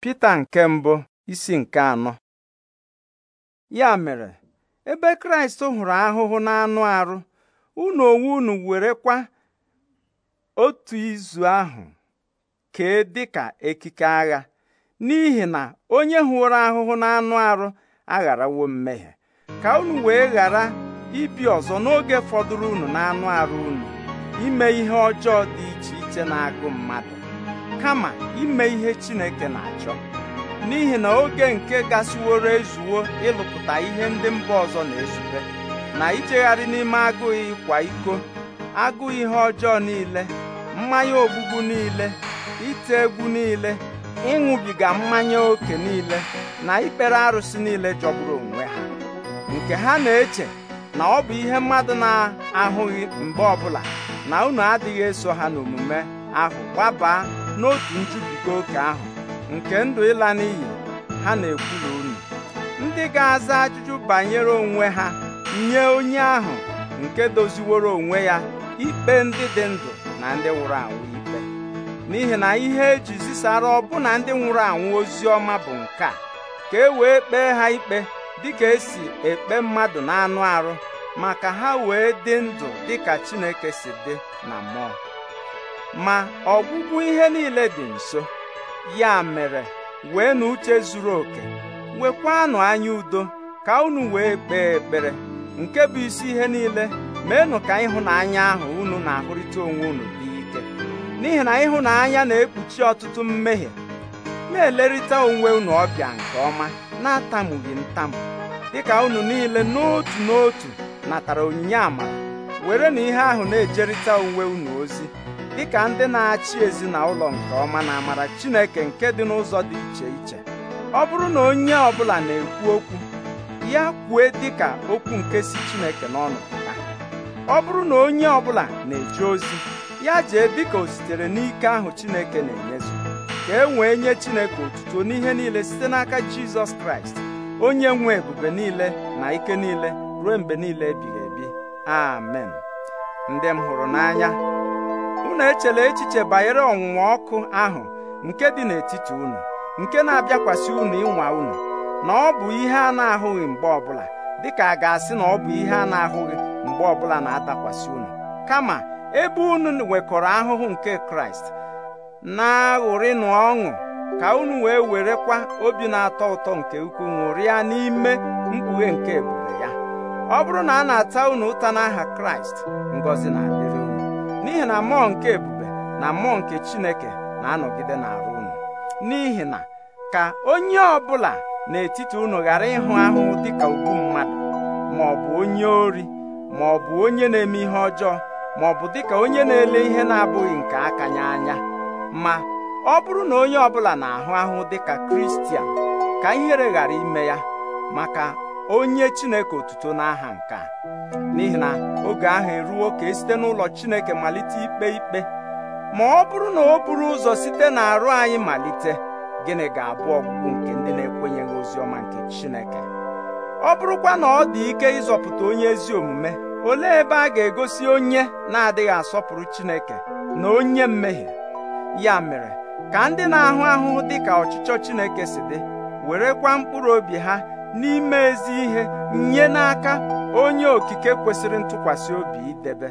Pita nke mbụ isi nke anọ ya mere ebe Kraịst hụrụ ahụhụ na anụ arụ unu onwe unu were kwa otu izu ahụ kee dịka ekike agha n'ihi na onye hụrụ ahụhụ na anụ arụ agharawo mmehie ka unu wee ghara ibi ọzọ n'oge fọdụrụ unu n'anụ arụ unu ime ihe ọjọọ dị iche iche na-agụ mmadụ kama ime ihe Chineke na-achọ n'ihi na oge nke gasịworo ezuwo ịlụpụta ihe ndị mba ọzọ na-ezube na ichegharị n'ime agụụ ịkwa iko agụụ ihe ọjọọ niile mmanya ogbugbu niile ite egwu niile ịṅụbiga mmanya ókè niile na ikpere arụsị niile jọgburu onwe ha nke ha na-eche na ọ bụ ihe mmadụ na-ahụghị mgbe ọbụla na unu adịghị eso ha n'omume ahụ gbabaa n'otu njubiga oke ahụ nke ndụ ịla n'iyi ha na-ekwula unu ndị ga-aza ajụjụ banyere onwe ha nye onye ahụ nke doziworo onwe ya ikpe ndị dị ndụ na ndị nwụrụ anwụ ikpe n'ihi na ihe eji zisara ọbụna ndị nwụrụ anwụ ozi ọma bụ nke a ka e wee kpee ha ikpe dịka esi ekpe mmadụ na anụ arụ maka ha wee dị ndụ dịka Chineke si dị na mmụọ ma ọgwụgwụ ihe niile dị nso ya mere wee na uche zuru oke nwekwanụ anya udo ka unu wee kpee ekpere nke bụ isi ihe niile meenụ ka ịhụnanya ahụ unu na-ahụrịta onwe unu dị ike n'ihi na ịhụnanya na-ekpuchi ọtụtụ mmehie na-elerịta onwe unu ọbịa nke ọma na-atamughị ntam dịka unu niile n'otu n'otu natara onyinye amara were na ihe ahụ na-ejerịta onwe unu ozi dịka ndị na-achị ezinụlọ nke ọma na amara Chineke nke dị n'ụzọ dị iche iche ọ bụrụ na onye ọbụla na-ekwu okwu ya kwue dịka okwu nke si Chineke n'ọnụ pụta ọ bụrụ na onye ọbụla na-eje ozi ya jee dịka o sitere n'ike ahụ Chineke na-enyezu ka e nwee nye Chineke otuto n'ihe niile site n'aka Jizọs Kraịst onye nwe ebube niile na ike niile ruo mgbe niile ebighị ebi amen ndị m hụrụ n'anya unu echela echiche banyere ọnwụnwa ọkụ ahụ nke dị n'etiti unu nke na-abịakwasị unu ịnwa unu na ọ bụ ihe a na-ahụghị mgbe ọbụla dịka a ga-asị na ọ bụ ihe a na-ahụghị mgbe ọbụla na-atakwasị unu kama ebe unu nwekọrọ ahụhụ nke Kraịst na-aṅụrịnụ ọṅụ ka unu wee werekwa obi na-atọ ụtọ nke ukwu ṅụrịa n'ime mkpughe nke ebube ya ọ bụrụ na a na-ata unu ụta n'aha Kraịst Ngozi na n'ihi na mmụọ nke ebube na mmụọ nke Chineke na-anọgide n'arụ unu n'ihi na ka onye ọbụla n'etiti unu ghara ịhụ ahụhụ dịka ugwu mmadụ ma ọ bụ onye ori ma ọ bụ onye na-eme ihe ọjọọ ma ọ bụ dịka onye na-ele ihe na-abụghị nke aka ya anya ma ọ bụrụ na onye ọbụla na-ahụ ahụhụ dịka Kristian ka ihere ghara ime ya maka onye chineke otuto n'aha nke a n'ihi na oge ahụ eruo ka esite n'ụlọ chineke malite ikpe ikpe ma ọ bụrụ na o buru ụzọ site na arụ anyị malite gịnị ga-abụ ọgwụgwụ nke ndị na-ekwenyeghị ozi ọma nke chineke ọ bụrụkwa na ọ dị ike ịzọpụta onye ezi omume olee ebe a ga-egosi onye na-adịghị asọpụrụ chineke na onye mmehie ya mere ka ndị na-ahụ ahụhụ dị ka ọchịchọ chineke si dị werekwa mkpụrụ obi ha n'ime ezi ihe nye n'aka onye okike kwesịrị ntụkwasị obi idebe